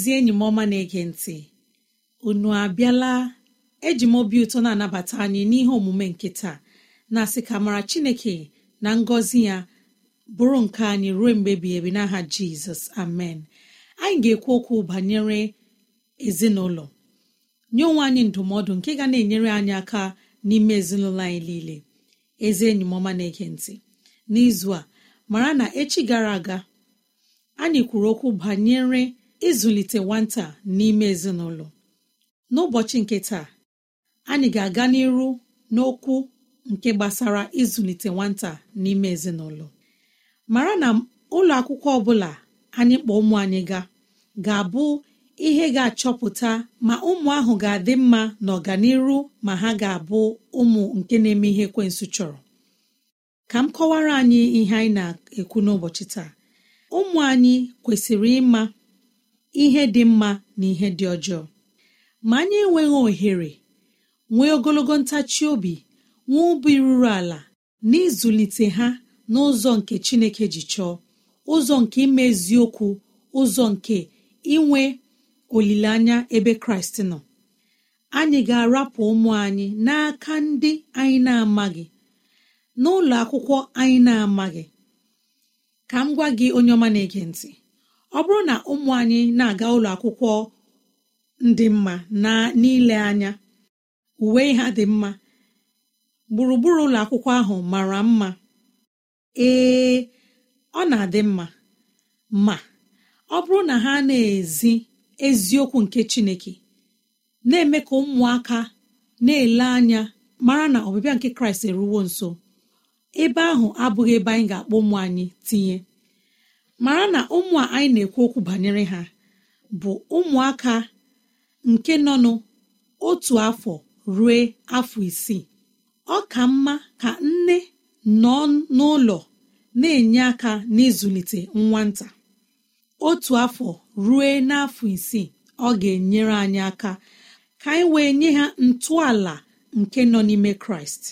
ezi enyi m ọma na-ege ntị unu abịala eji m obi ụtọ na-anabata anyị n'ihe omume nke taa na-asị ka mara Chineke na ngọzi ya bụrụ nke anyị ruo mgbe ebighị ebi n'aha Jizọs amen anyị ga-ekwu okwu banyere ezinụlọ nye onwe anyị ndụmọdụ nke ga na-enyere anyị aka n'ime ezinụlọ anyị niile ezi enyi m ọma na-ege ntị n'izu a mara na echi gara aga anyị kwuru okwu banyere ịzụlite nwata n'ime ezinụlọ n'ụbọchị nke taa anyị ga-aga n'iru n'okwu nke gbasara ịzụlite nwata n'ime ezinụlọ mara na ụlọ akwụkwọ ọbụla anyị kpọọ ụmụ anyị ga ga-abụ ihe ga-achọpụta ma ụmụ ahụ ga-adị mma n'ọganiru ma ha ga-abụ ụmụ nke na-eme ihe kwensụ chọrọ ka m kọwara anyị ihe anyị na-ekwu n'ụbọchị taa ụmụ anyị kwesịrị ịma ihe dị mma na ihe dị ọjọọ ma anyị enweghị ohere nwee ogologo ntachi obi nwee obi ruru ala na ịzụlite ha n'ụzọ nke Chineke ji chọọ ụzọ nke imeziokwu, ụzọ nke inwe olileanya ebe Kraịst nọ anyị ga-arapụ ụmụ anyị n'aka ndị anyị na-amaghị n'ụlọ akwụkwọ anyị na-amaghị ka m gwa gị onye ọma na-ege ntị ọ bụrụ na ụmụ anyị na-aga ụlọ akwụkwọ ndị mma n'ile anya uwe ha dị mma gburugburu ụlọ akwụkwọ ahụ mara mma ee ọ na-adị mma ma ọ bụrụ na ha na-ezi eziokwu nke Chineke na-eme ka ụmụaka na-ele anya mara na ọbịbịa nke Kraịst eruwo nso ebe ahụ abụghị ebe anyị ga-akpọ ụmụ anyị tinye mara na ụmụ a anyị na-ekwu okwu banyere ha bụ ụmụaka nke nọ n'otu afọ ruo afọ isii ọ ka mma ka nne nọ n'ụlọ na-enye aka n'ịzụlite nwata otu afọ ruo n'afọ isii ọ ga-enyere anyị aka ka anyị wee nye ha ntọala nke nọ n'ime kraịst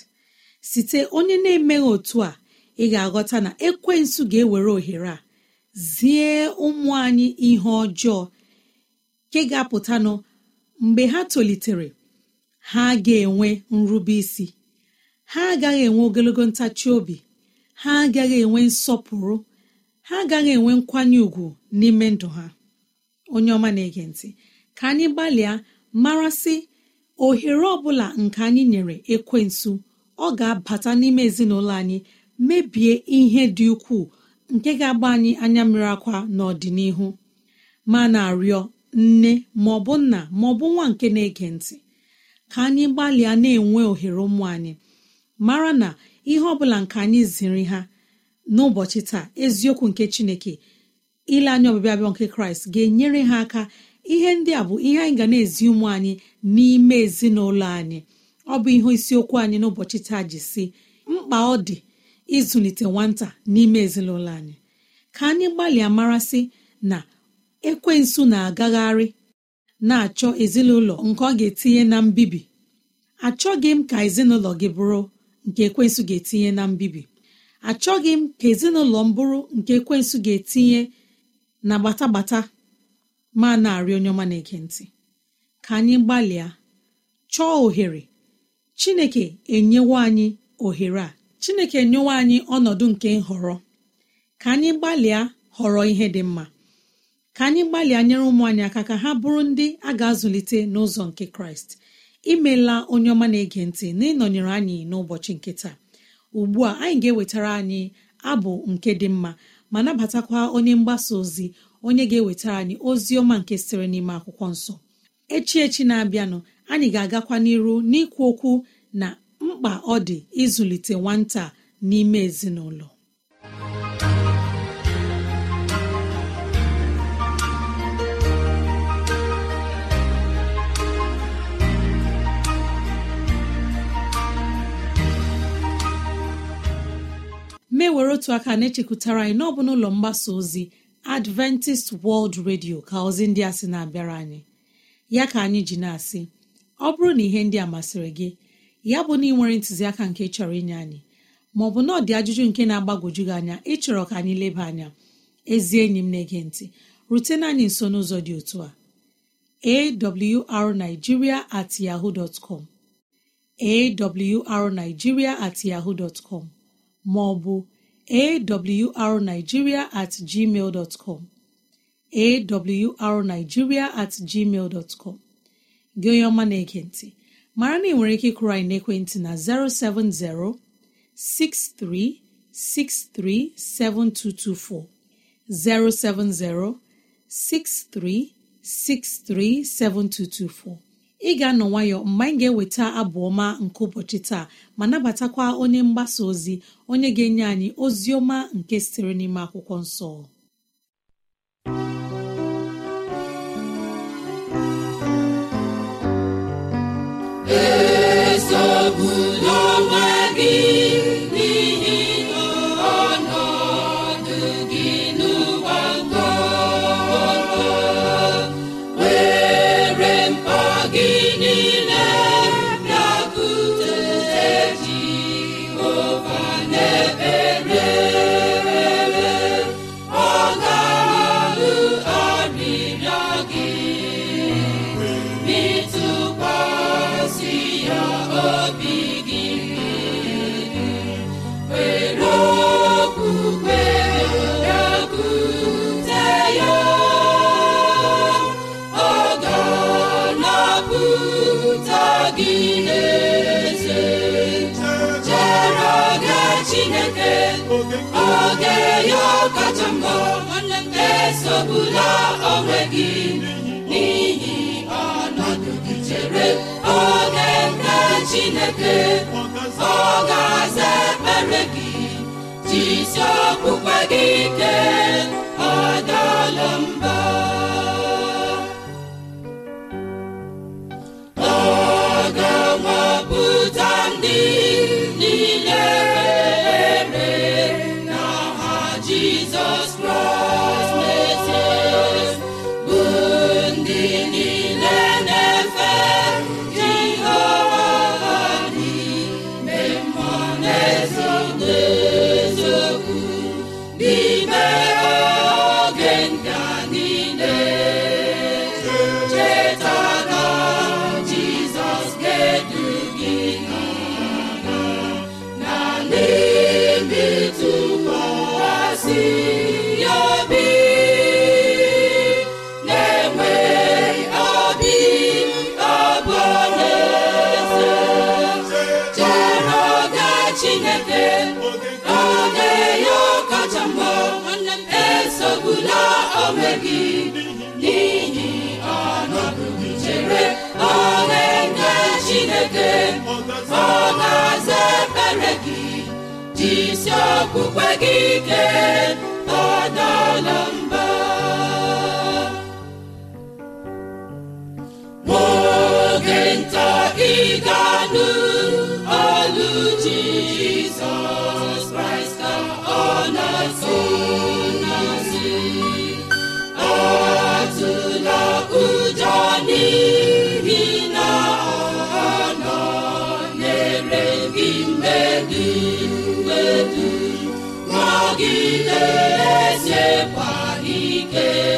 site onye na-emeghị otu a ị ga-aghọta na ekwensu ga-ewere ohere a zie ụmụ anyị ihe ọjọọ nke ga-apụtanụ mgbe ha tolitere ha ga-enwe nrube isi ha agaghị enwe ogologo ntachi obi ha agaghị enwe nsọpụrụ ha agaghị enwe nkwanye ùgwù n'ime ndụ ha onye ọma na-ege ntị ka anyị gbalịa marasị ohere ọbụla bụla nke anyị nyere ekwensu ọ ga-abata n'ime ezinụlọ anyị mebie ihe dị ukwuu nke ga-agba anyị anya mmiri akwa n'ọdịnihu ma na-arịọ nne ma nna bụ nwa nke na-ege ntị ka anyị gbalịa na-enwe ohere ụmụ anyị mara na ihe ọ bụla nke anyị ziri ha n'ụbọchị taa eziokwu nke chineke ile anya ọbịbịa abịọ nke kraịst ga-enyere ha aka ihe ndị a bụ ihe anyị ga na-ezi ụmụ anyị n'ime ezinụlọ anyị ọ bụ ihe isiokwu anyị n'ụbọchị taa ji si mkpa ọ dị ịzụlite nwata n'ime ezinụlọ anyị ka anyị gbalịa marasị na ekwensu na-agagharị na-achọ ezinụlọ nke ọ ga-etinye na mbibi achọghị m ka ezinụlọ gị bụrụ nke ekwensu ga-etinye na mbibi achọghị m ka ezinụlọ m bụrụ nke ekwensu ga-etinye na gbatagbata ma na-arị onye ọma na-ege ntị ka anyị gbalịa chọọ ohere Chineke enyewo anyị ohere a chineke nyewe anyị ọnọdụ nke nhọrọ ka anyị gbalịa họrọ ihe dị mma ka anyị gbalịa nyere ụmụ anyị aka ka ha bụrụ ndị a ga-azụlite n'ụzọ nke kraịst imela onye ọma na-ege ntị na ịnọnyere anyị n'ụbọchị nke taa ugbu a anyị ga-ewetara anyị abụ nke dị mma ma nabatakwa onye mgbasa ozi onye ga-ewetara anyị ozi ọma nke sịrị n'ime akwụkwọ nsọ echi echi na-abịanụ anyị ga-agakwa n'iru n'ikwu okwu na mkpa ọ dị ịzụlite nwata n'ime ezinụlọ mewere otu aka na-echekwutara anyị n'ọbụ n'ụlọ mgbasa ozi adventist world radio ka ozi ndị a sị na-abịara anyị ya ka anyị ji na-asị ọ bụrụ na ihe ndị a masịrị gị ya bụ na ị ntụziaka nke chọrọ inye anyị ma ọ bụ na ọ dị ajụjụ nke na-agbagwoju gị anya ịchọrọ ka anyị leba anya ezi enyi m na-ege ntị rutena anyị nso n'ụzọ dị otu a awrnigeria at yahoo dot com awrnigeria at yahoo dot maọbụ awrnigeria at gmail dot com at gmail dot com gị onye ọma na-ege ntị mara na ị nwere ike ịkụrụ anyị n'ekwentị na 070 6363 7224 ị ga-anọ nwayọ mgbe anyị ga-eweta abụ ọma nke ụbọchị taa ma nabatakwa onye mgbasa ozi onye ga-enye anyị ozi ọma nke sitere n'ime akwụkwọ nsọ bụla onwe gị n'ihi ọnọdụ gị chere oge nke Chineke ọ ga-aza ekpere gị jizọs isi okwukwe gị ike ọ ezekwara ike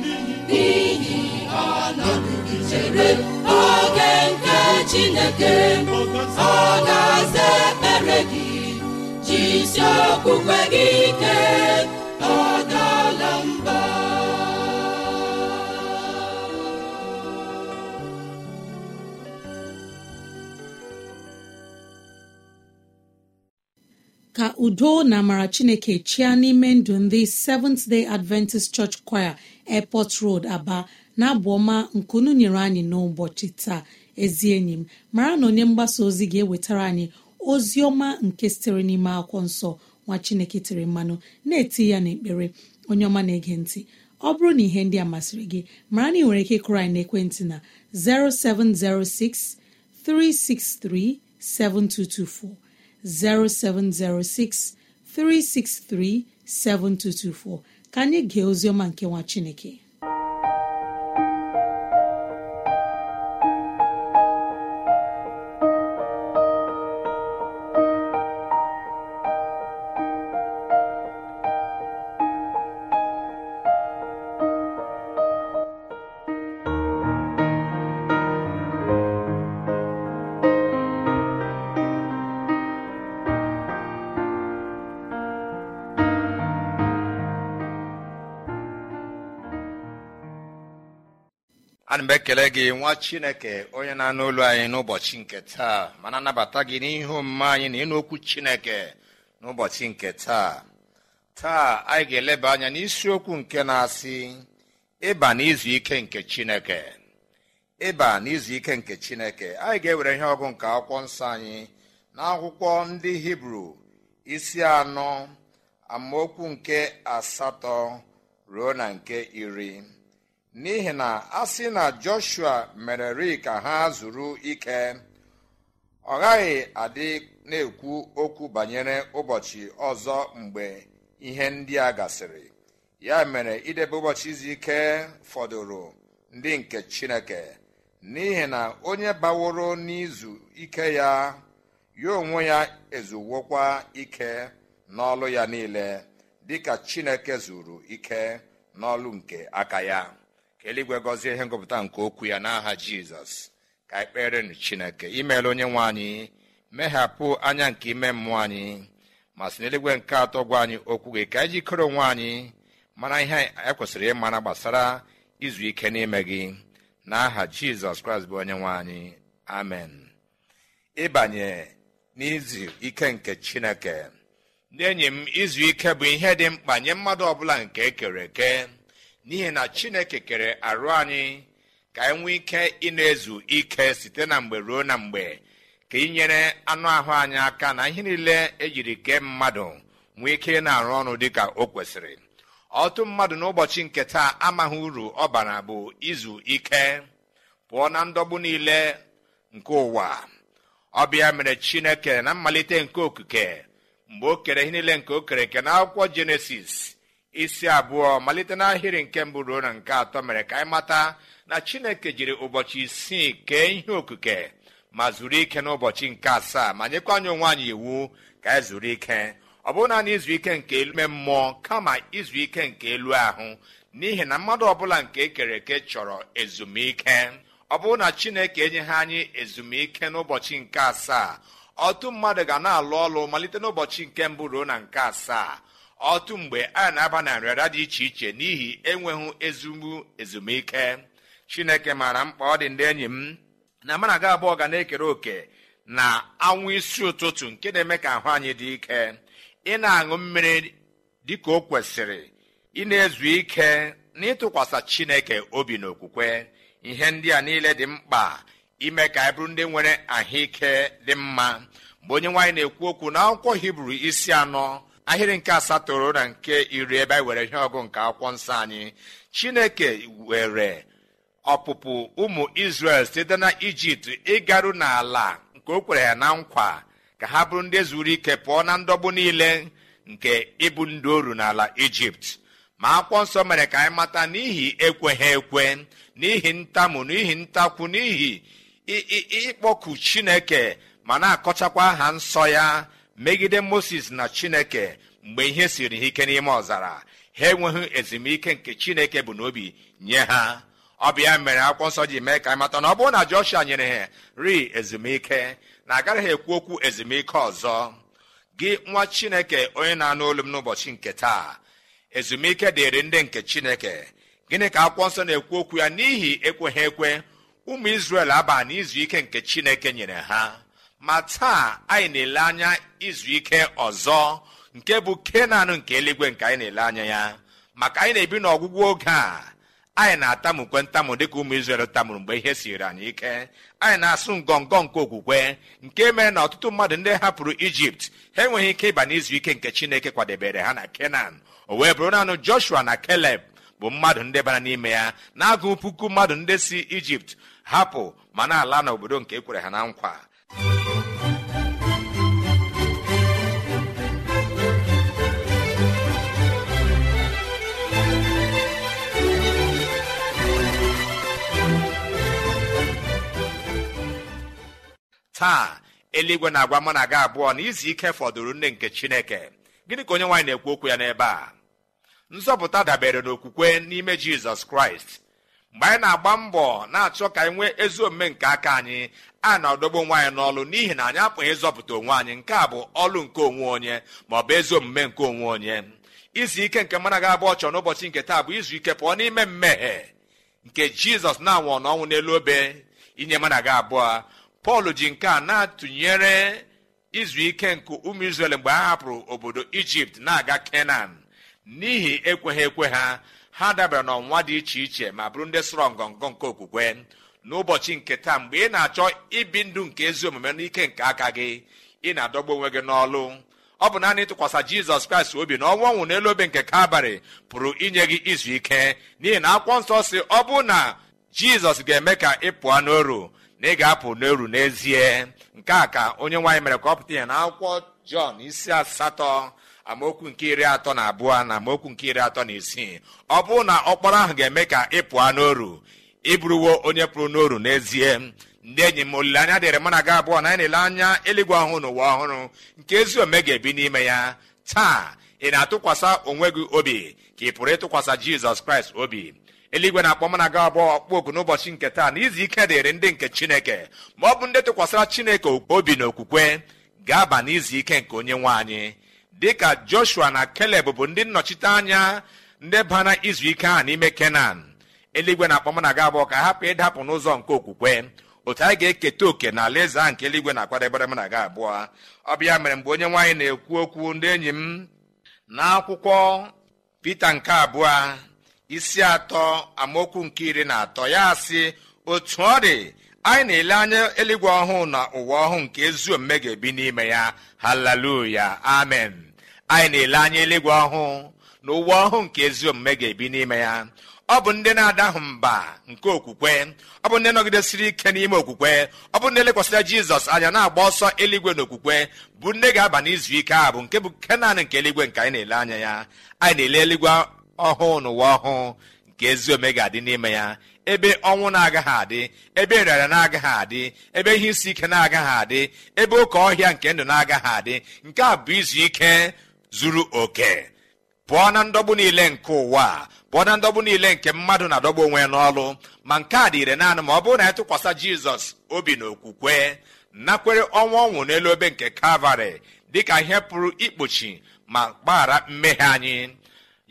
ka udo na amara chineke chịa n'ime ndụ ndị seventh day adventist church choir airport road aba na abụ ọma nkunu nyere anyị n'ụbọchị taa ezi enyi m mara na onye mgbasa ozi ga-ewetara anyị ozi ọma nke sitere n'ime akwụkwọ nsọ nwa chineke tiri mmanụ na-eti ya n'ekpere onye ọma na-ege ntị ọ bụrụ na ihe ndị a masịrị gị mara na ị nwere ike kụrụ anyị n'ekwentị na 0706 363 7224 0706 363 7224 ka anyị gee ozi ọma nke nwa chineke na ekele gị nwa chineke onye na-anụ olu anyị n'ụbọchị nke taa mana anabata gị n'ihe omume anyị na ịnụ okwu chineke n'ụbọchị nke taa taa anyị ga-eleba anya n'isiokwu nke na-asị ịba n'izu ike nke chineke ịba n'izu ike nke chineke anyị ga-ewere ihe ọgụ nke akwụkwọ nsọ anyị na akwụkwọ ndị hibru isi anọ amaokwu nke asatọ ruo na nke iri n'ihi na a sị na joshua mereri ka ha zuru ike ọ gaghị adị na-ekwu okwu banyere ụbọchị ọzọ mgbe ihe ndị a gasịrị ya mere idebe ụbọchị izu ike fọdụrụ ndị nke chineke n'ihi na onye baworo n'izu ike ya ya onwe ya ezuwokwa ike n'ọlụ ya niile dịka chineke zuru ike n'ọlụ nke aka ya ka eluigwe gọzie ihe ngụpụta nke okwu ya n'aha jizọs ka kpere kperenụ chineke imeela onye nwe anyị meghapụ anya nke ime mmụọ anyị ma sị n'eluigwe nke atọ gwa anyị okwu gị ka anyị jikere onwe anyị mara ihe ekwesịrị ịmara gbasara izu ike n'ime gị n'aha jizọs kraịst bụ onye nwe anyị amen ịbanye n'izu ike nke chineke ndị enyi m izu ike bụ ihe dị mkpa nye mmadụ ọbụla nke ekere eke n'ihi na chineke kere arụ anyị ka anyị ike ịna ezu ike site na mgbe ruo na mgbe ka ịnyere anụ ahụ anyị aka na ihe niile ejiri kee mmadụ nwee ike ị na-arụ ọrụ dịka o kwesịrị ọtụ mmadụ n'ụbọchị nke taa amaghị uru ọ bara bụ izu ike pụọ na ndọgbu niile nke ụwa ọbịa mere chineke na mmalite nke okike mgbe o kere ihe niile nke o kere na akwụkwọ jenesis isi abụọ malite n'ahịrị nke mbụ ruo na nke atọ mere ka anyị mata na chineke jiri ụbọchị isii kee ihe okike ma zuru ike n'ụbọchị nke asaa ma nyekwa anyị onwe anyị iwu ka anyị e zuru ike ọ bụrụ naanị izu ike nke ime mmụọ kama izu ike nke elu ahụ n'ihi na mmadụ ọbụla nke ekere eke chọrọ ezumike ọ bụrụ na chineke enyeghị anyị ezumike n'ụbọchị nke asaa ọtụ mmadụ ga na-alụ ọlụ malite n'ụbọchị nke mbụ ruo na nke asaa otu mgbe a na-aba na nrịara dị iche iche n'ihi enweghị ezumbu ezumike chineke maara mkpa ọ dị ndị enyi m na mana aga abụọ ga na-ekere òkè na anwụ isi ụtụtụ nke na-eme ka ahụ anyị dị ike ị na-aṅụ mmiri ka o kwesịrị ị na-ezu ike na ịtụkwasị chineke obi na okwukwe ihe ndị a niile dị mkpa ime ka anyị bụrụ ndị nwere ahụike dị mma mgbe onye nwaanyị na-ekwu okwu na akwụkwọ hibru isi anọ ahịrị nke asatọ na nke iri ebe anyị were ihe ọgụ nke akwụkwọ nsọ anyị chineke were ọpụpụ ụmụ isrel site na ijipt ịgaru n'ala nke o kwere ya na nkwa ka ha bụrụ ndị zuru ike pụọ na ndọgbu niile nke ịbụ ndị oru n'ala ijipt ma akwụkwọ nsọ mere ka anyị mata n'ihi ekweghị ekwe n'ihi ntamu n'ihi ntakwu n'ihi ịkpọku chineke ma na-akọchakwa aha nsọ ya megide moses na chineke mgbe ihe siri ha ike n'ime ọzara ha enweghị ezumike nke chineke bụ n'obi nye ha ọ bụ mere akwụkwọ nsọ ji mee ka mata na ọ bụrụ na joshua nyere ha ri ezumike na agaghị ekwu okwu ezumike ọzọ gị nwa chineke onye na-anụ olu m n'ụbọchị nke taa ezumike dịrị ndị nke chineke gịnị ka akwụkwọ nsọ na-ekwu okwu ya n'ihi ekweghị ekwe ụmụ izrel aba n'izu ike nke chineke nyere ha ma taa anyị na-ele anya izu ike ọzọ nke bụ kenan nke eluigwe nke anyị na-ele anya ya maka anyị na-ebi n'ọgwụgwụ oge a anyị na-atamukwe ntamụ dịka ụmụ izrel tamụrụ mgbe ihe siri anyị ike anyị na-asụ ngọngọ nke okwukwe nke mere na ọtụtụ mmadụ ndị hapụrụ ijipt ha enweghị ike ịba n'izu ike nke chineke kwadebere ha na kenan o wee bụrụ naanị joshua na keleb bụ mmadụ ndị bara n'ime ya na-agụ puku mmadụ ndị si ijipt hapụ ma na-ala n'obodo nke ekwere ha na nkwa taa eluigwe na-agwa mụ na gị abụọ na izu ike fọdụrụ nne nke chineke gịnị ka onye nwaanyị na-ekwu okwu ya n'ebe a nzọpụta dabere n'okwukwe n'ime jizọs kraịst mgbe anyị na-agba mbọ na-achọ ka anyị nwee ezi omume nke aka anyị a na-adọgbu nwaanyị anyị n'ọlụ n'ihi na anyị apụghị ịzọpụta onwe anyị nke a bụ ọlụ nke onwe onye ma ọ bụ ezi omume nke onwe onye izu ike nke mana ga-abụ ọchọ n'ụbọchị nke taa bụ izu ike pụọ n'ime mmehie nke jizọs na-anwụ n'ọnwụ n'elu obe inye mana abụọ pọl ji nke a na-atụnyere izu ike nke ụmụ izrel mgbe ha hapụrụ obodo ijipt na-aga kenan n'ihi ekweghị ekwe ha ha dabara n'ọnwa dị iche iche ma bụrụ ndị sọrọ ngọngọ nke okwukwe n'ụbọchị nke taa mgbe ị na-achọ ibi ndụ nke ezi omume n'ike nke aka gị ị na-adọgbu onwe gị n'ọlụ ọ bụ naanị ịtụkwasị jizọs kraịst obi na ọnwa ọnwụ n'elu obe nke kalbarị pụrụ inye gị izu ike n'ihi na akwọ nsọ si ọ bụ na jizọs ga-eme ka ị pụọ n'oru na ị ga-apụ n'oru n'ezie nke a ka onye nwaanyị mere ka ọ pụta ya na akwụkwọ jọn isi asatọ amaokwu nke iri atọ na abụọ na amaokwu nke iri atọ na isii ọ bụrụ na ọkpọrọ ahụ ga-eme ka ị pụọ n'oru ịbụrụwo onye pụrụ n'oru n'ezie ndị enyi m olileanya dịrị mụ na gị abụọ na anyị anya eluigwe ọhụụ n'ụwa ọhụrụ nke ezi ome ga-ebi n'ime ya taa ị na-atụkwasị onwe gị obi ka ị pụrụ ịtụkwasị jizọs kraịst obi eluigwe na-akpọ m na gị abụọ ọkpọ oku n'ụbọchị nke taa na izu ike dịrị ndị nke chineke ma ọ bụ ndị tụkwasịra chineke obi na okwukwe ga-aba n'izu ike nke onye nwe anyị dịka joshua na keleb bụ ndị nnọchite anya ndị bana izu ike ahụ n'ime kenan eluigwe na akpọm na aga abụọ ka hapụ ịdapụ n'ụzọ nke okwukwe otu anyị ga-eketa òkè na alaeze ahụ nke eluigwe na-akwadebere m na aga abụọ ọ bịa mere mgbe onye nwaanyị na-ekwu okwu ndị enyi m n'akwụkwọ pete nke abụọ isi atọ amaokwu nke iri na atọ ya sị otu ọ dị anyị na-ele anya eluigwe ọhụụ na ụwa ọhụụ nke ezi omume ga-ebi n'ime ya haleluya amen anyị na-ele anya eluigwe ọhụụ na ụwa ọhụụ nke ezi omume ga-ebi n'ime ya ọ bụ ndị na-adahụ mba nke okwukwe ọ bụ ndị nọgidesiri ike n'ime okwukwe ọ bụ ndị lekwasịra jizọs anya na-agba ọsọ eluigwe okwukwe bụ ndị ga-aba n'izu ike a bụ nke bụ nke naanị nke eluigwe nke anyị na-ele anya ya anyị na-ele eluigwe ọhụụ n'ụwa ọhụụ nke ezi ome ga-adị n'ime ya ebe ọnwụ na-agaghị adị ebe nrịara na-agaghị adị ebe ihe isi ike na-agaghị adị ebe oke ọhịa nke ndụ na-agaghị adị nke a bụ izu ike zuru oke pụọ na ndọgbu niile nke ụwa pụọ na ndọgbu niile nke mmadụ na-adọgbu onwe n'ọlụ ma nke a dịire naanị ma ọ bụrụ na ya tụkwasị jizọs obi na okwukwe nakwere ọnwa ọnwụ n'elu obe nke kalvarị dịka ihe pụrụ ikpuchi ma gbaghara mmehie anyị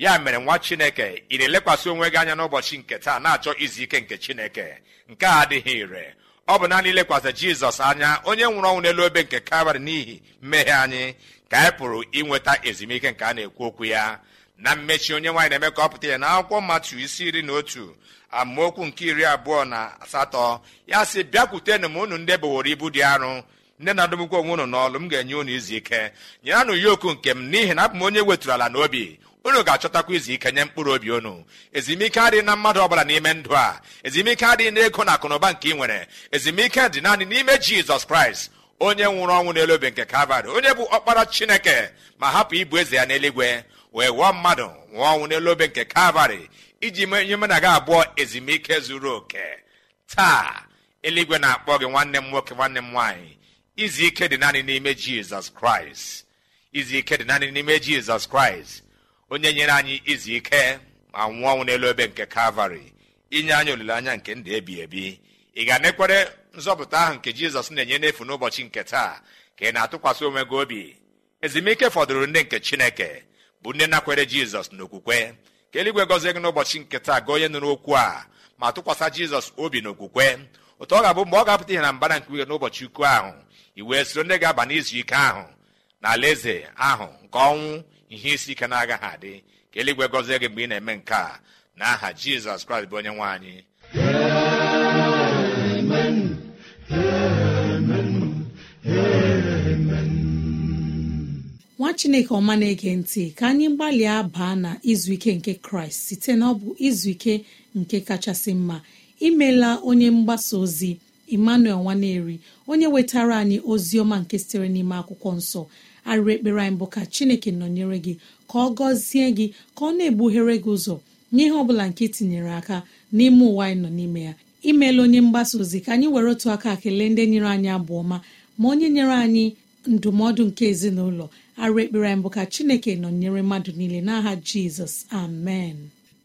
ya mere nwa chineke ị na-elekwasị onwe gị anya n'ụbọchị nke taa na-achọ izu ike nke chineke nke a adịghị ire ọ bụ naanị ilekwasị jizọs anya onye nwụrụ ọnwụ n'elu obe nke kabarị n'ihi mmehie anyị ka anyị pụrụ inweta ezumike nke a na-ekwu okwu ya na mmechi onye nwaanyị na-eme ka ọ pụta ya na akwụkwọ mmatụ isi iri na otu amaokwu nke iri abụọ na asatọ ya sị bịakwutenụ m unu ndị boworo ibu dị arụ ndị na adụmkwu onwe unu n'ọlụ m ga-enye unu izu ike nyeranụ yoku nke m n'ihi na abụ m onye wetụrụ ala n'obi unu ga-achọtakwa izu ike nye mkpụrụ obi unu ezumike adịghị na mmadụ ọbụla n'ime ndụ a ezumike adịghị n'ego na akụnụba nke ị nwere ezumike dị naanị n'ime jizọs kraịst onye nwụrụ ọnwụ n'elu obe nke kalvarị onye bụ ọkpara chineke ma hapụ ibu eze ya n'eluigwe wee wụọ mmadụ nwụọ ọnwụ n'elu obe nke kalvarị iji menye mụ na gị abụọ ezumike zuru oke taa eluigwe na-akpọ gị nwanne m nwoke nwanne m nwaanyị izu ike dị naanị n'ime jizọs kraịst izu ike dị naanị n'ime jizọs kraịst onye nyere anyị izu ike ma nwụọ ọnwụ n'elu ebe nke kalvarị inye anyị olileanya nke ndụ ebi ebi ị ga-anekwere nzọpụta ahụ nke jizọs na-enye n'efu n'ụbọchị nke taa ka ị na-atụkwasị onwe gị obi ezumike fọdụrụ ndị nke chineke bụ nne nakwere jizọs n'okwukwe ka eluigwe gọzie gị n'ụbọchị nke taa gị onye nụrụ okwu a ma tụkwasị jizọs obi n'okwukwe ụtọ ọ ga-abụ mgbe ọ ga-apụta ihe na mbara nke uhe n'ụbọchị ukwu ahụ i wee soro ndị ga-aba n'izu ike ahụ na alaeze ahụ nke ọnwụ ihe isi ike na-agaghị adị ka eluigwe gọzie gị mgbe ị na-eme nke a na aha jizọs kraịst bụ onye nwe anyị nwa chineke ọma na-ege ntị ka anyị gbalịa baa na izu ike nke kraịst site na ọ bụ izu ike nke kachasị mma imela onye mgbasa ozi emmanuel nwaneri onye wetara anyị ozi ọma nke sitere n'ime akwụkwọ nsọ arịrị ekpere anyị bụ ka chineke nọnyere gị ka ọ gọzie gị ka ọ na egbughere gị ụzọ n'ihe ọ bụla nke e tinyere aka n'ime ụwa anyị nọ n'ime ya imeela onye mgbasa ozi ka anyị were otu aka kelee ndị nyere anyị abụ ọma ma onye nyere anyị ndụmọdụ nke ezinụlọ arụ ekpere bụ ka chineke nọnyere mmadụ niile n'aha jizọs amen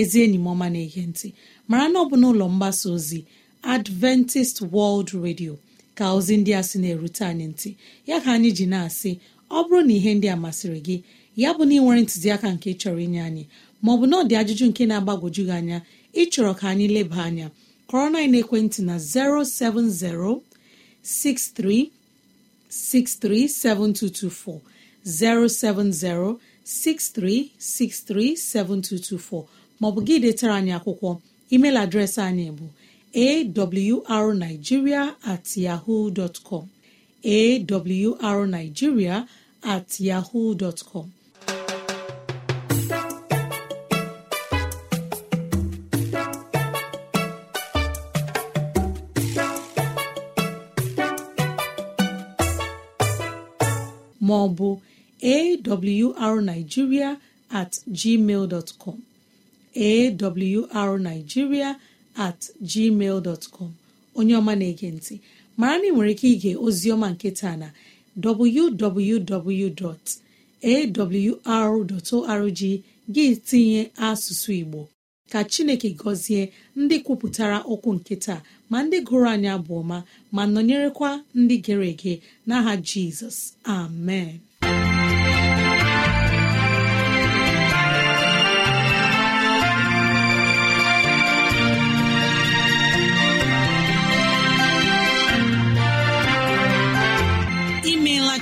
ezi enyi m ọma na-ege ntị mara na ọ bụ n'ụlọ mgbasa ozi adventist world radio ka ozi ndị a sị na-erute anyị ntị ya ka anyị ji na-asị ọ bụrụ na ihe ndị a masịrị gị ya bụ na ị nwere ntụziaka nke chọrọ inye anyị maọbụ na ọ dị ajụjụ nke na-agbagwoju gị anya ịchọrọ ka anyị leba anya kọrọ na ekwentị na 07063637224 07063637224 maọbụ gị detara anyị akwụkwọ email adreesị anyị bụ awrnigeria at maọbụ awrnigeria at gmail dtcom awrnigeria at gmail dot com onye ọma na-ege ntị mara na ị nwere ike ige oziọma nke taa na www.awr.org gị tinye asụsụ Igbo ka Chineke gọzie ndị kwupụtara okwu nke taa ma ndị gụrụ anya bụ ọma ma nọnyerekwa ndị gere ege n'aha Jizọs amen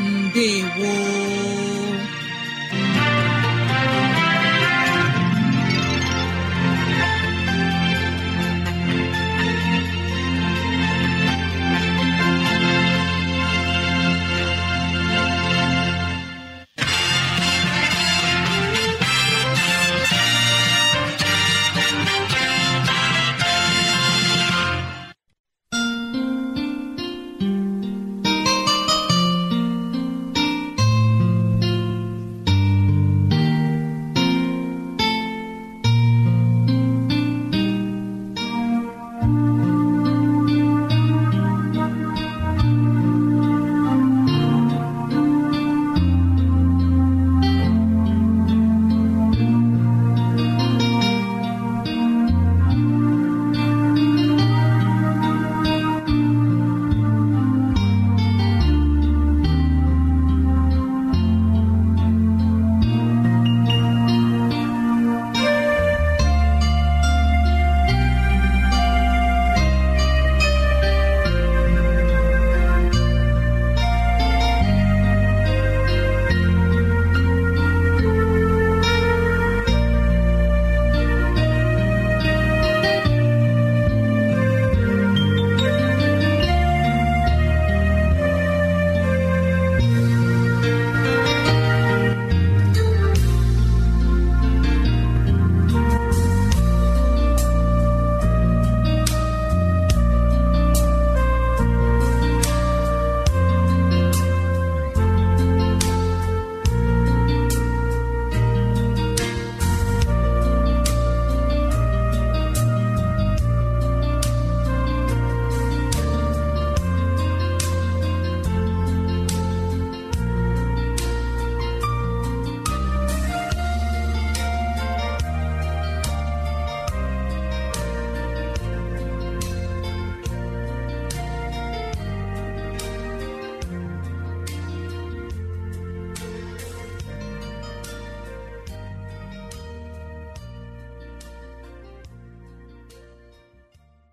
ndewo